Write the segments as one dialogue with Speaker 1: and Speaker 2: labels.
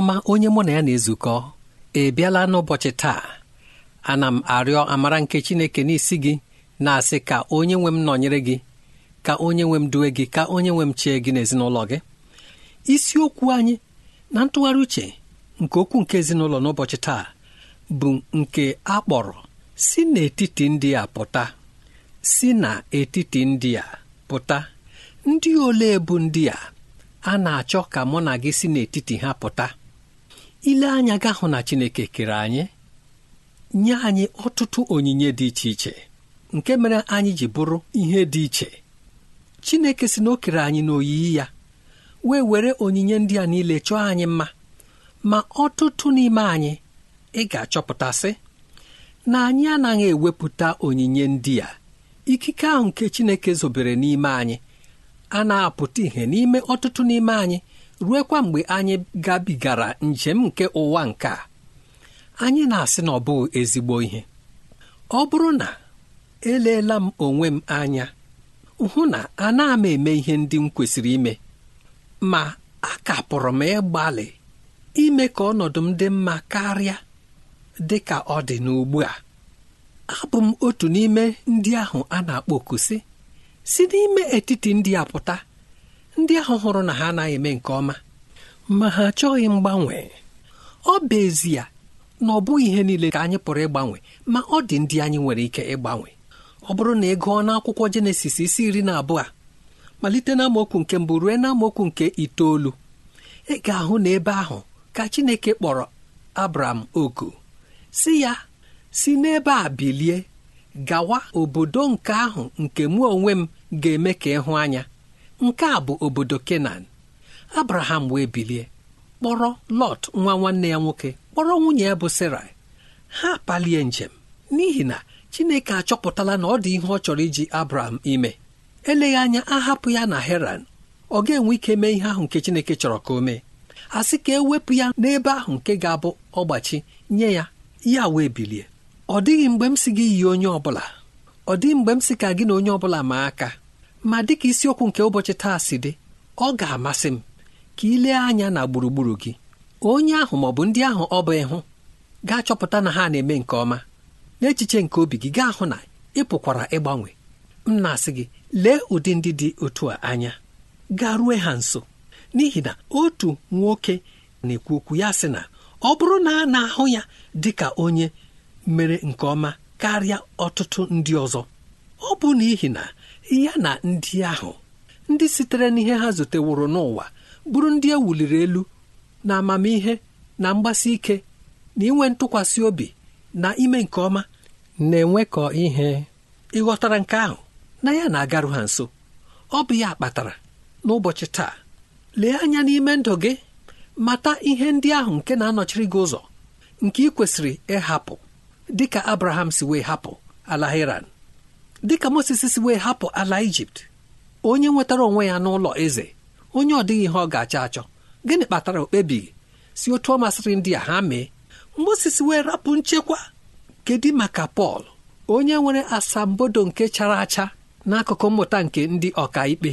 Speaker 1: ọma onye mụ na ya na-ezukọ ị bịala n'ụbọchị taa ana m arịọ amara nke Chineke n'isi gị na-asị ka onye nwe m nọnyere gị ka onye nwe m duwe gị ka onye nwe m chee gị n'ezinụlọ gị isiokwu anyị na ntụgharị uche nke okwu nke ezinụlọ n'ụbọchị taa bụ nke a kpọrọ si n'etiti ndị a pụta si n'etiti ndị a pụta ndị ole bụ ndị a a na-achọ ka mụ na gị si n'etiti ha pụta ile anya ga hụ na Chineke kere anyị nye anyị ọtụtụ onyinye dị iche iche nke mere anyị ji bụrụ ihe dị iche Chineke si na o kere anyị n'oyiyi ya wee were onyinye ndị a niile chọọ anyị mma ma ọtụtụ n'ime anyị ị ga-achọpụtasị na anyị anaghị ewepụta onyinye ndị a ikike ahụ nke Chineke zobere n'ime anyị a na-apụta ihe n'ime ọtụtụ n'ime anyị ruekwa mgbe anyị gabigara njem nke ụwa nke a anyị na-asị na ọ bụghị ezigbo ihe ọ bụrụ na eleela m onwe m anya hụ na ana m eme ihe ndị m kwesịrị ime ma a kapụrụ m ịgbalị ime ka ọnọdụ m dị mma karịa dị ka ọ dị n'ugbu a abụ m otu n'ime ndị ahụ a na-akpọ okusi si n'ime etiti ndị a pụta ndị ahụ hụrụ na ha anaghị eme nke ọma ma ha achọghị mgbanwe ọ bụ ezie na ọ bụghị ihe niile ka anyị pụrụ ịgbanwe ma ọ dị ndị anyị nwere ike ịgbanwe ọ bụrụ na ị gụọ n'akwụkwọ jenesis isi iri na abụọ malite na nke mbụ ruo na amaokwu nke itoolu ị ga-ahụ na ebe ahụ ka chineke kpọrọ abram oku si ya si n'ebe a bilie gawa obodo nke ahụ nke mụ onwe m ga-eme ka ịhụ anya nke a bụ obodo kenan abraham wee bilie kpọrọ lọt nwa nwanne ya nwoke kpọrọ nwunye ya bụ sarai ha palie njem n'ihi na chineke achọpụtala na ọ dị ihe ọ chọrọ iji abraham ime eleghị anya ahapụ ya na heran ọ ga-enwe ike mee ihe ahụ nke chineke chọrọ ka o mee a sị ka ewepụ ya n'ebe ahụ nke ga-abụ ọgbachi nye ya ya wee bilie ọ dịghị mgbe m si gị yi onye ọbụla ọ dịghị mgbe m si ka gị na onye ọbụla ma aka ma dịka isiokwu nke ụbọchị taa si dị ọ ga-amasị m ka ị lee anya na gburugburu gị onye ahụ ma ọ bụ ndị ahụ ọ bụ ịhụ ga-achọpụta na ha na-eme nke ọma n'echiche nke obi gị gaa hụ na ị pụkwara ịgbanwe m na-asị gị lee ụdị ndị dị otu a anya garue ha nso n'ihi na otu nwoke na-ekwu okwu ya sị na ọ bụrụ na a na-ahụ ya dị ka onye mere nke ọma karịa ọtụtụ ndị ọzọ ọ bụ n'ihi na ya na ndị ahụ ndị sitere n'ihe ha zuteworo n'ụwa bụrụ ndị e wuliri elu na amamihe na mgbasi ike na inwe ntụkwasị obi na ime nke ọma na-enwekọ ihe ịghọtara nke ahụ na ya na-agarụ ha nso ọ bụ ya kpatara n'ụbọchị taa lee anya n'ime ndụ gị mata ihe ndị ahụ nke na-anọchiri gị ụzọ nke ị kwesịrị ịhapụ dịka Abraham si wee hapụ ala dịka Moses si wee hapụ ala Ijipt onye nwetara onwe ya n'ụlọ eze onye ọ dịghị ihe ọ ga-achọ achọ gịnị kpatara okpebighị si otu ọ masịrị ndị a ha mee Moses wee rapụ nchekwa kedu maka Pọl onye nwere asambodo nke chara acha n'akụkụ mmụta nke ndị ọka ikpe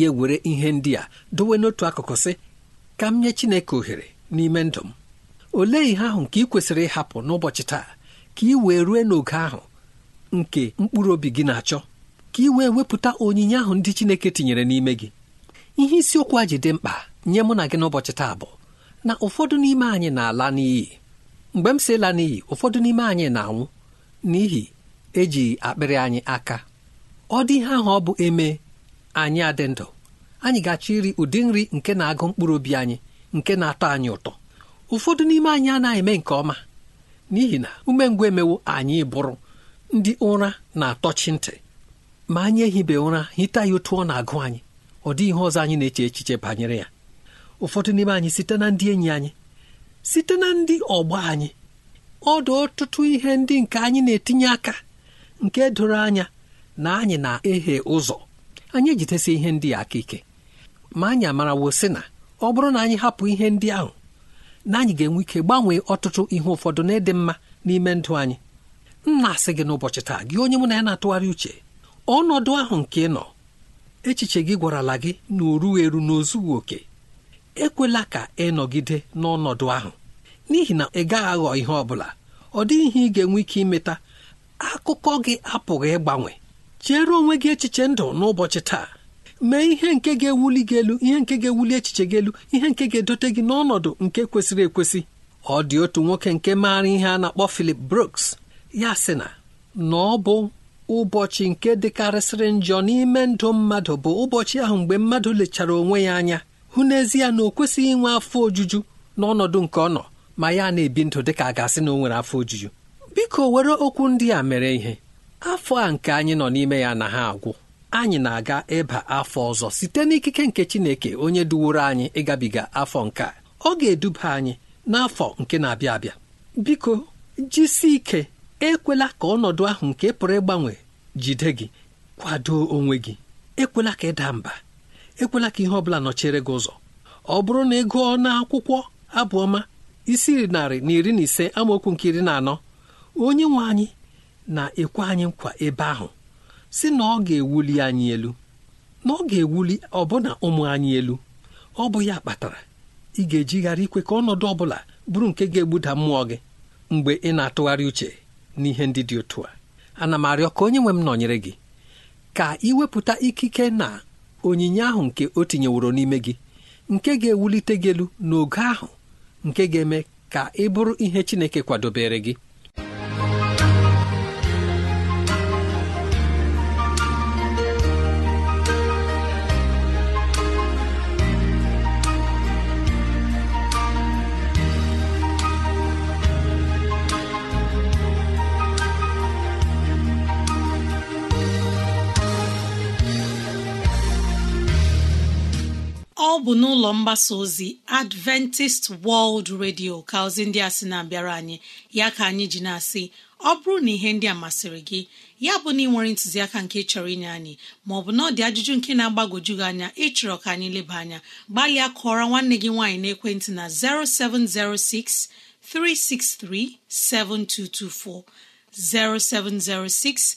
Speaker 1: ya were ihe ndị a dowe n'otu akụkụ sị ka m nye Chineke ohere n'ime ndụ m olee ihe ahụ nke ị kwesịrị ịhapụ n'ụbọchị taa ka ị wee rue n'oge ahụ nke mkpụrụ obi gị na-achọ ka ị wee wepụta onyinye ahụ ndị Chineke tinyere n'ime gị ihe isiokwu a ji dị mkpa nye mụ na gị n'ụbọchị taa bụ na ụfọdụ n'ime anyị na-ala n'iyi mgbe m si la n'iyi ụfọdụ n'ime anyị na-anwụ n'ihi eji akpịrị anyị aka ọ dị ihe ahụ ọ bụ eme anyị adị ndụ anyị ga-achọ iri ụdị nri nke na-agụ mkpụrụ obi anyị nke na-atọ anyị ụtọ ụfọdụ n'ime anyị anaghị eme nke ọma n'ihi na umengwụ emewo anyị bụrụ ndị ụra na-atọchi ntị ma anyị ehibe ụra hita ya otu ọ na-agụ anyị ọ dị ihe ọzọ anyị na-eche echiche banyere ya ụfọdụ n'ime anyị site na ndị enyi anyị site na ndị ọgbọ anyị ọ dị ọtụtụ ihe ndị nke anyị na-etinye aka nke doro anya na anyị na-ehe ụzọ anyị ejidesi ihe ndị a aka ike ma anyị amarawo si na ọ bụrụ na anyị hapụ ihe ndị ahụ na anyị ga-enwe ike gbanwee ọtụtụ ihe ụfọdụ na ịdị mma n'ime ndụ anyị nna asị gị n'ụbọchị taa gị onye mụ na ya na-atụgharị uche ọnọdụ ahụ nke ị nọ echiche gị gwarala gị na o eru n'ozughị okè ekwela ka ị nọgide n'ọnọdụ ahụ n'ihi na ị gaghị aghọ ihe ọ bụla ọ dịghị ihe ị ga-enwe ike imeta akụkọ gị apụghị ịgbanwe chere onwe gị echiche ndụ n'ụbọchị taa mee ihe nke ga-ewuli gị elu ihe nke ga-ewuli echiche gị elu ihe nke ga-edote gị n'ọnọdụ nke kwesịrị ekwesị ọ dị otu nwoke nke maara ihe a na-akpọ Philip Brooks ya sị na na ọ bụ ụbọchị nke dịkarịsịrị njọ n'ime ndụ mmadụ bụ ụbọchị ahụ mgbe mmadụ lechara onwe ya anya hụ n'ezie na o kwesịghị inwe afọ ojuju n'ọnọdụ nke ọ nọ ma ya na-ebi ndụ ka a ga-asị na o nwere afọ ojuju biko were okwu ndị a mere ihe afọ a nke anyị nọ n'ime ya na ha agwụ anyị na-aga ịba afọ ọzọ site n'ikike nke Chineke onye duworo anyị ịgabiga afọ nke ọ ga-eduba anyị n'afọ nke na-abịa abịa biko jisi ike ekwela ka ọnọdụ ahụ nke pụrụ ịgbanwe jide gị kwado onwe gị ekwela ka ịda mba ekwela ka ihe ọbụla nọchere gị ụzọ ọ bụrụ na ị gụọ n'akwụkwọ abụọma isi narị na iri na ise amaokwu nke iri na anọ onye nwe anyị na-ekwe anyị nkwa ebe ahụ si na ọ ga-ewuli anyị elu na ọ ga-ewuli ọbụna ụmụ anyị elu ọ bụ ya kpatara ị ga-ejigharị ikwe ka ọnọdụ ọbụla bụrụ nke ga-egbuda mmụọ gị mgbe ị na-atụgharị uche n'ihe ndị dị otu a ana m arịọ ka onye nwe m nọnyere gị ka iwepụta ikike na onyinye ahụ nke o tinyeworo n'ime gị nke ga-ewulite gị elu n'ogo ahụ nke ga-eme ka ị bụrụ ihe Chineke kwadobere gị
Speaker 2: ọ bụ n'ụlọ mgbasa ozi adventist world radio ka ozi ndị a sị na-abịara anyị ya ka anyị ji na-asị ọ bụrụ na ihe ndị a masịrị gị ya bụ na ị nwere ntụziaka nke chọrọ inye anyị maọbụ na ọ dị ajụjụ nke na-agbagwoju gị anya ịchọrọ ka anyị leba anya gbalịa kụọra nwanne gị nwaanyị n'ekwentị na 0706 363 7224 0706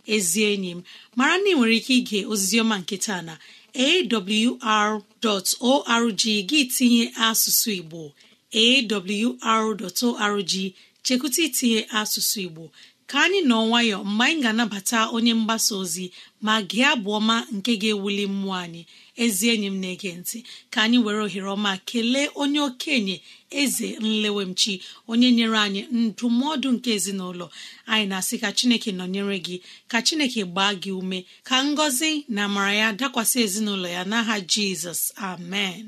Speaker 2: ezi enyi m mara na ị nwere ike ige oziziọma nke taa na awr.org gị tinye asụsụ igbo awr.org chekwụta itinye asụsụ igbo ka anyị nọ nwayọ mgbe anyị ga-anabata onye mgbasa ozi ma gị abụ ọma nke ga-ewuli mmụọ anyị ezi enyi m na-ege ntị ka anyị were ohere ọma kelee onye okenye eze nlewemchi onye nyere anyị ndụmọdụ nke ezinụlọ anyị na-asị ka chineke nọnyere gị ka chineke gbaa gị ume ka ngọzi na amara ya dakwasị ezinụlọ ya n'aha jizọs amen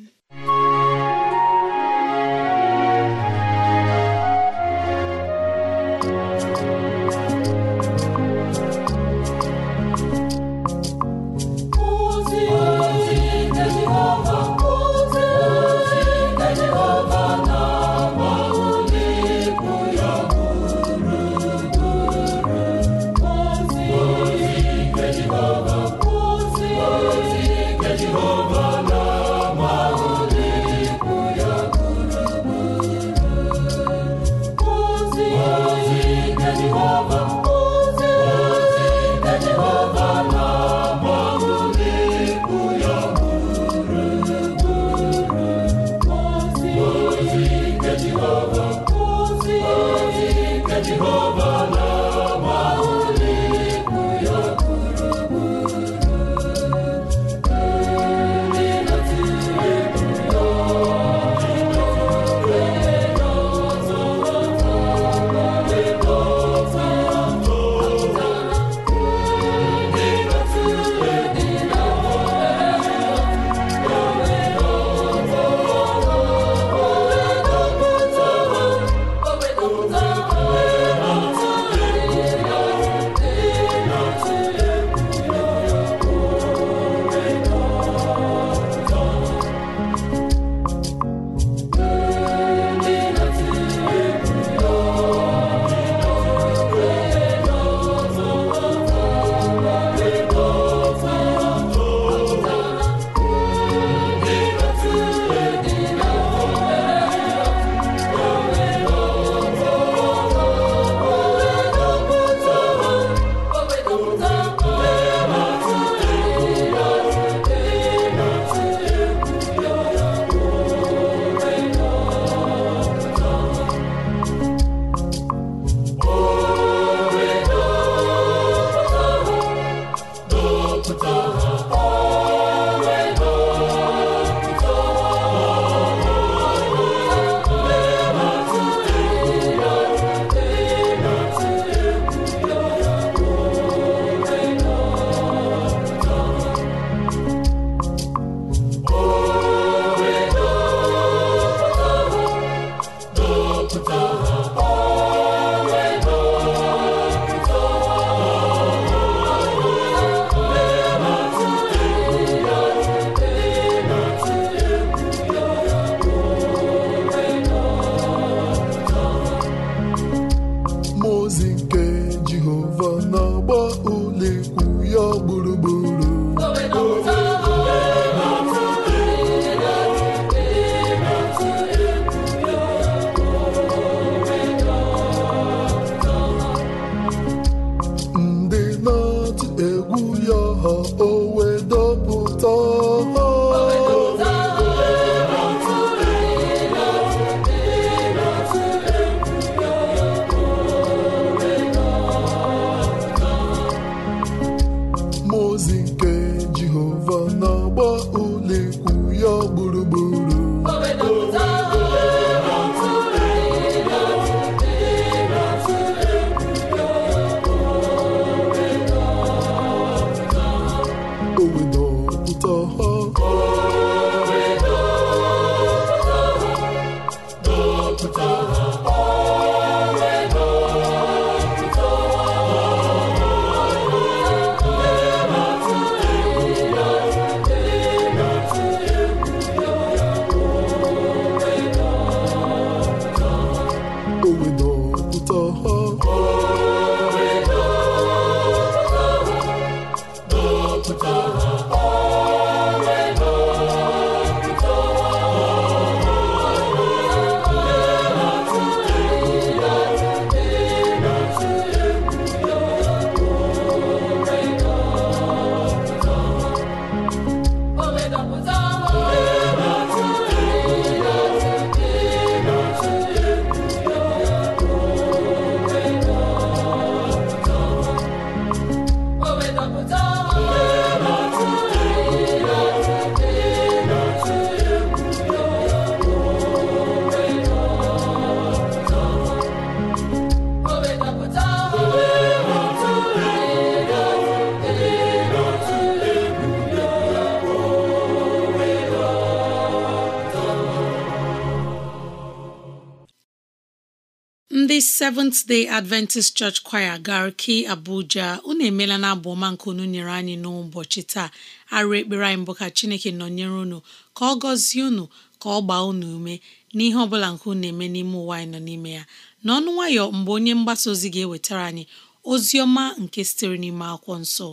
Speaker 2: Seventh Day Adventist Church Choir Garki Abuja unu emela na abụ ọma nke unu nyere anyị n'ụbọchị taa arụ ekpere anyị mbụ ka Chineke nọnyere unu ka ọ gọzie unu ka ọ gbaa unu ume n'ihe ọ bụla nke unu na-eme n'ime ụwa anyị nọ n'ime ya n'ọnụ nwayọ mgbe onye mgbasa ozi ga-ewetara anyị ozi ọma nke sitere n'ime akwụkwọ nsọ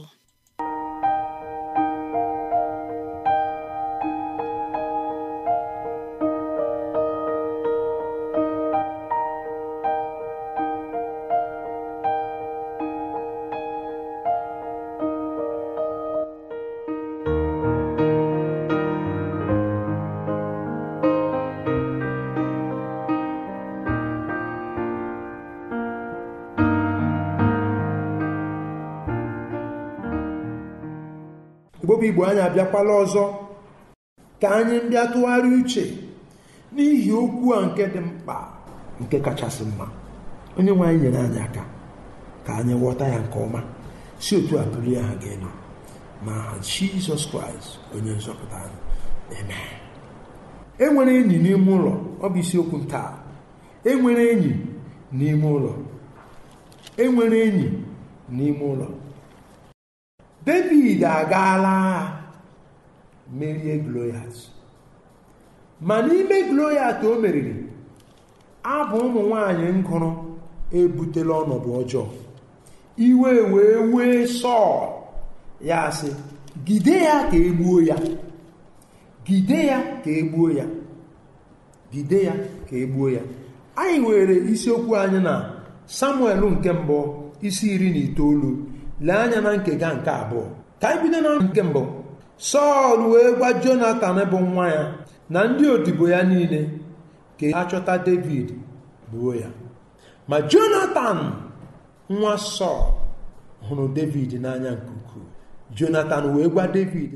Speaker 3: bụ igbo anyị abịakwala ọzọ ka anyị bịa tụgharị uche n'ihi okwu a nke dị mkpa nke kachasị mma onye nwe anyị nyere anyị aka ka anyị ghọta ya nke ọma si otu a ya ha ga elu ma jizọs kraịst onye nzọpụta anyị eme. enwere enyi n'ime ụlọ bụ isiokwu taa enwere enyi enwere enyi n'ime ụlọ e david agaala agha merie gloyat ma n'ime gloyat o meriri abụ ụmụ nwanyị ngụrụ ebutela ọnọdụ ọjọọ iwe wee wee sọọ ya asị gide ya ka egbuo ya gide ya ka egbuo ya gide ya ka egbuo ya anyị were isiokwu anyị na samuel nke mbụ isi iri na itoolu lee anya na nkega nke abụọ ka anyị bido na nke mbụ sọl wee gwa jonatan bụ nwa ya na ndị odibo ya niile ka a chọta david buo ya ma jonatan nwa sọl hụrụ david n'anya nke ukwuu jonatan wee gwa david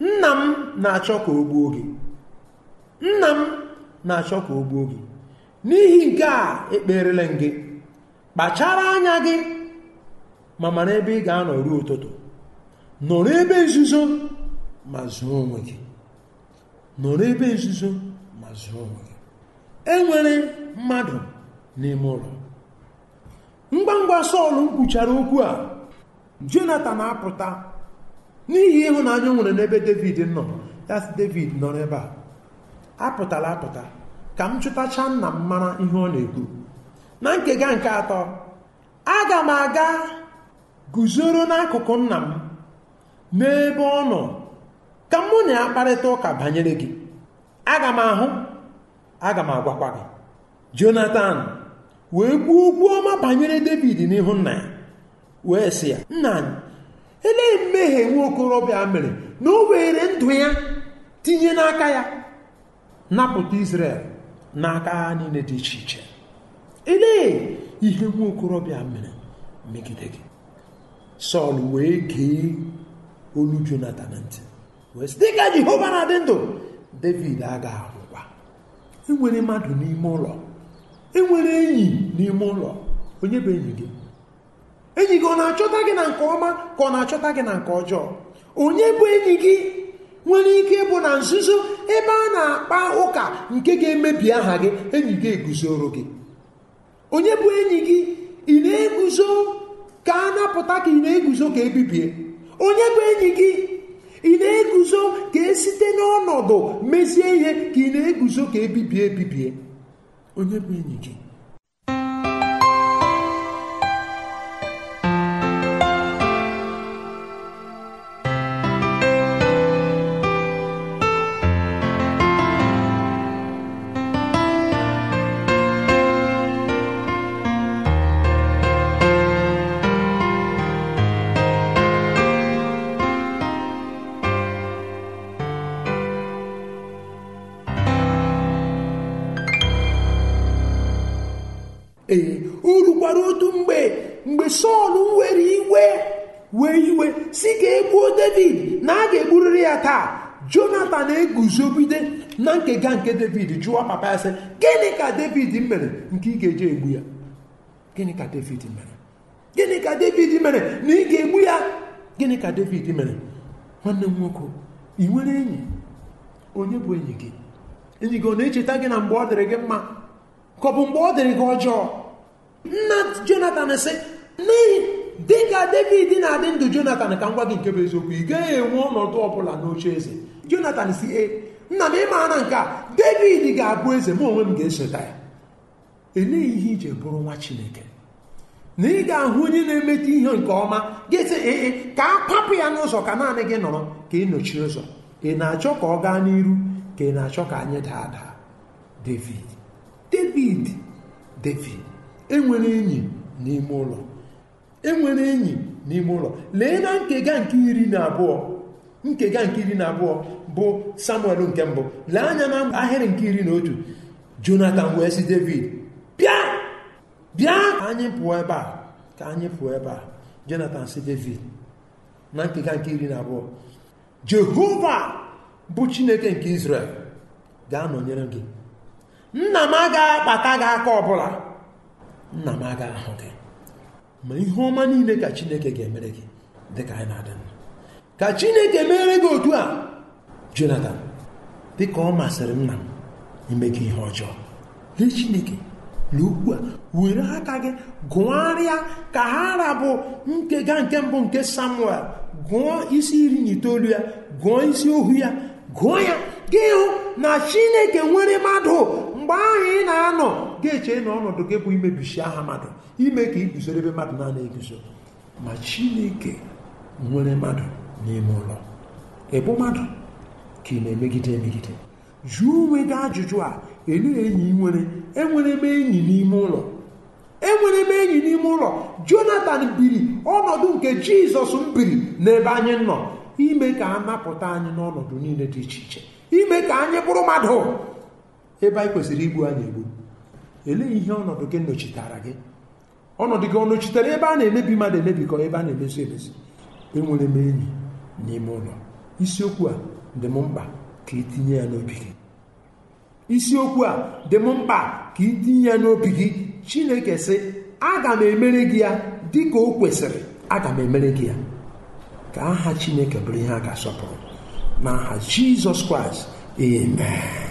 Speaker 3: nna m na-achọ ka o gbuo gị nna m na-achọ ka o gbuo gị n'ihi nke a ekperele m gị kpachara anya gị ma mara ebe ị ga-anọ ruo ụtụtụ nọrọ ebe nzuzo ma zụọ onwe gị nọrọ ebe nzuzo ma zụọ onwe gị enwere mmadụ n'ime ụlọ ngwa ngwa Sọl kwuchara okwu a Jonatan apụta n'ihi ịhụnanya nwere n'ebe David nọ yas David nọ n'ebe a apụtala apụta ka m chụtacha nna m mara ihe ọ na-ekwu na nkega nke atọ aga m aga guzoro n'akụkụ nna m n'ebe ọ nọ ka mụ na ya kparịta ụka banyere gị aga m ahụ aga m agwakwa gị jonathan wee kwuo okwu ọma banyere david n'ihu nna ya wee sị ya nna anyị elee mmehie nwa okorobịa mere na o were ndụ ya tinye n'aka ya napụta israel n'aka agha niile dị iche iche elee ihe nwa okorobịa mere megide Sọl wee gee olu Jonatan ntị wee dịka Jehova na-adị ndụ David aga anwụkwa enwere mmadụ n'ime ụlọ enwere enyi n'ime ụlọ onye bụ enyi gị enyi gị ọ na-achọta gị na nke ọma ka ọ na-achọta gị na nke ọjọọ onye bụ enyi gị nwere ike ịbụ na nzuzo ebe a na-akpa ụka nke ga-emebi aha gị enyi gị eguzoro gị onye bụ enyi gị ị na-eguzo ka a napụta ka ị na-eguzo ka ebibie onye bụ enyi gị ị na-eguzo ka esite n'ọnọdụ mezie ihe ka ị na-eguzo ka ebibie ebibie onye bụ enyi gị mgbe sọl were iwe wee iwe si ka egbuo david na a ga-egburiri ya taa jonatan eguzogide na ga nke david jụọ papa ya sị gịnị ka david mere nke ị ga-eji egbu ya gịnị ka david mere gịnị ka david mere na ị ga-egbu ya gịnị ka david mere nwanne m nwoke ị nwere enyi onye bụ enyi gị enyi gị ọ na-echeta gị na mgbe ọ dịrị gị mma ka ọ bụ mgbe ọ dịrị gị ọjọọ nna jonathan sị n'ihi dịka david na-adị ndụ jonathan ka ngwa gị nke bụ eziokwu ị gaghị enwe ọnọdụ ọbụla n'oche eze jonathan si e nna m ịmaara nke a david ga-abụ eze m onwe m ga-esota ya eleghị ihe ije bụrụ nwa chineke na ị ga-ahụ onye na emete ihe nke ọma ga ee ka a kwapụ ya n'ụzọ ka naanị gị nọrọ ka ị nọchie ụzọ ị na-achọ ka ọ gaa n'iru ka ị na-achọ ka anyị daa daa david david david enwere enyi n'ime ụlọ enwere enyi n'ime ụlọ lee na nkega nke iri na abụọ nkega nke iri na abụọ bụ samuel nke mbụ lee anya na ahịrị nke iri na otu jonathan wee si david bịa bịa anyị pụọ ebe a ka anyị pụọ ebe a jonathan si david na nkega nke iri na abụọ jehova bụ chineke nke israel ga-anọnyere gị nna m agaghị akpata gị aka ọbụla nna m agaghị ahụ gị ma ihe ọma niile ka chineke ga-emere gị dịka anyị na-adị ka chineke mere gị otu a jonathan dịka ọ masịrị nna m imeghị ihe ọjọọ lee chineke na a were aka gị gụgharịa ka ha rabụ nkega nke mbụ nke samuel gụọ isi iri na itoolu ya gụọ isi ohu ya gụọ ya gị hụ na chineke nwere mmadụ mgbe ahụ ị na-anọ ga-eche na ọnọdụ gị bụ imebichi aha mmadụ ime ka iguzoro ebe mmadụ na-ana eguzo ma chineke nwere mmadụ n'ime ụlọ ịbụ mmadụ ka ị na-emegide emegide jụọ onwe gị ajụjụ a elu enyi nwere enwere m enyi n'ime ụlọ enwere m enyi n'ime ụlọ jonathan biri ọnọdụ nke jizọs biri n'ebe anyị nọ ime ka a napụta anyị n'ọnọdụ niile dị iche iche ime ka anyị bụrụ mmadụ ebe anyị kwesịrị igbu anyị egbu elee ihe ọnọdụ gị nọchitara gị ọnọdụ gị ọ nọchitere ebe a na-emebi mmadụ emebikọ ebe a na-emezu emezu enwere m enyi n'ime ụlọ isiokwu a dị m mkpa ka itinye ya n'obi gị isiokwu a dị m mkpa ka itinye ya n'obi gị chineke sị aga m emere gị ya dị ka o kwesịrị aga m emere gị ya ka aha chineke bụrụ ihe a ga-asọpụrụ n'aha jizọs kraịst amen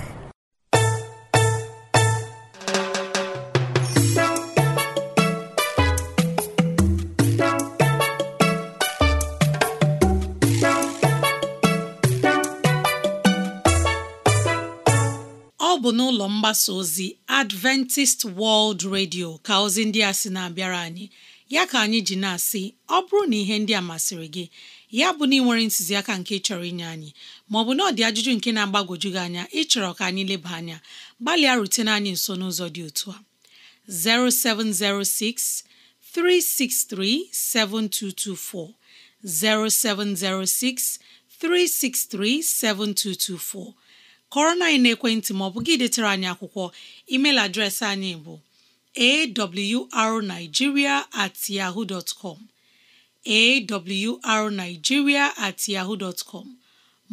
Speaker 2: mgbasa ozi Adventist World Radio ka ozi ndị a sị na-abịara anyị ya ka anyị ji na-asị ọ bụrụ na ihe ndị a masịrị gị ya bụ na ị nwere ntụziaka nke chọrọ inye anyị maọbụ na ọ dị ajụjụ nke na-agbagwoju gị anya ịchọrọ ka anyị leba anya gbalịa rutene anyị nso n'ụzọ dị otu a 0706 363 7224 0706 363 7224 kọrọ na anyị na-ekwentị ma ọ bụ gị detere anyị akwụkwọ email adreesị anyị bụ arigiria at yahoo dot com at yahoo com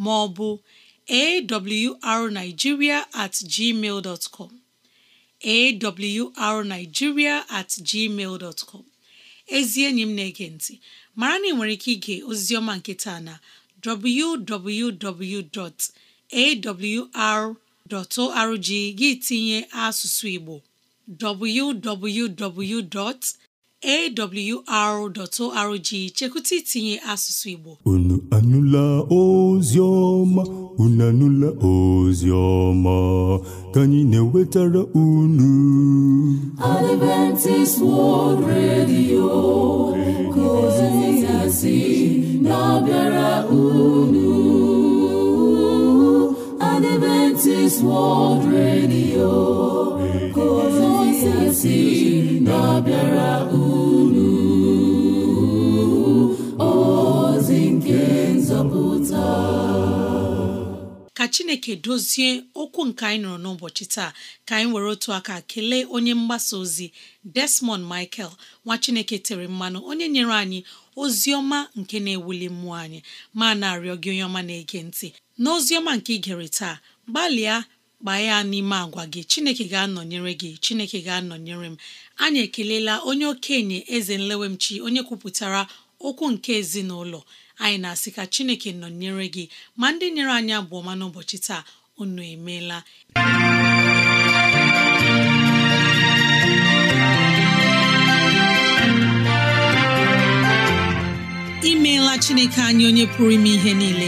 Speaker 2: maọbụ ọ bụ at gmail com awrnigeria at gmail dot com ezi enyi m na-ege ntị mara na ị nwere ike ige ozizioma nketa na www. awr.org gị tinye asụsụ Igbo www.awr.org chekwụta itinye asụsụ Igbo
Speaker 3: unu anụla ozi ọma unu anụla ozi ọma ka anyị na-ewetara unu
Speaker 4: Adventist World Radio ka ya si na-abịara unu Adventist World Radio na-abịara
Speaker 2: ozi nke nzọpụta ka Chineke dozie okwu nke anyị nọrọ n'ụbọchị taa ka anyị were otu aka kelee onye mgbasa ozi Desmond Michael nwa Chineke tere mmanụ onye nyere anyị ozi ọma nke na-ewuli mmụọ anyị ma na-arịọ gị onye ọma na-ege ntị n'ozi ọma nke ị gere taa gbalịa gbaa ya n'ime agwa gị chineke ga-anọnyere gị chineke ga-anọnyere m anyị ekelela onye okenye eze nlewemchi onye kwupụtara okwu nke ezinụlọ anyị na-asị ka chineke nọnyere gị ma ndị nyere anyị abụọ ma n'ụbọchị taa unu emeela imeela chineke anyị onye pụrụ ime ihe niile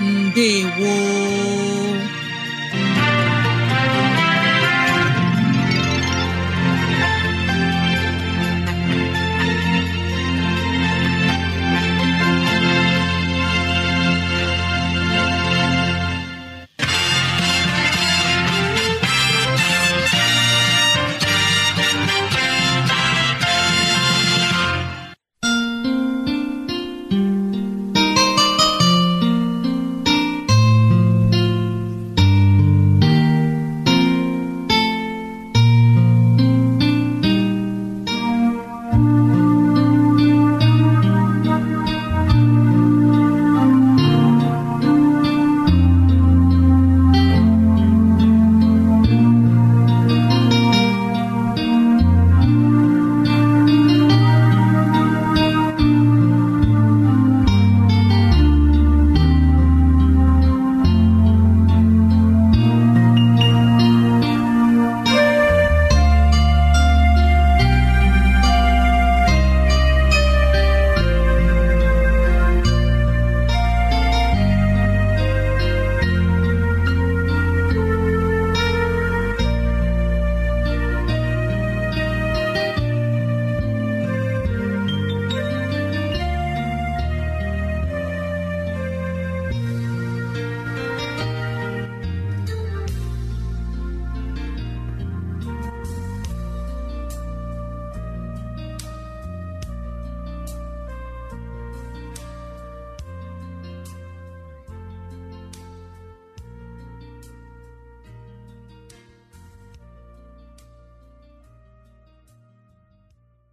Speaker 2: ndewo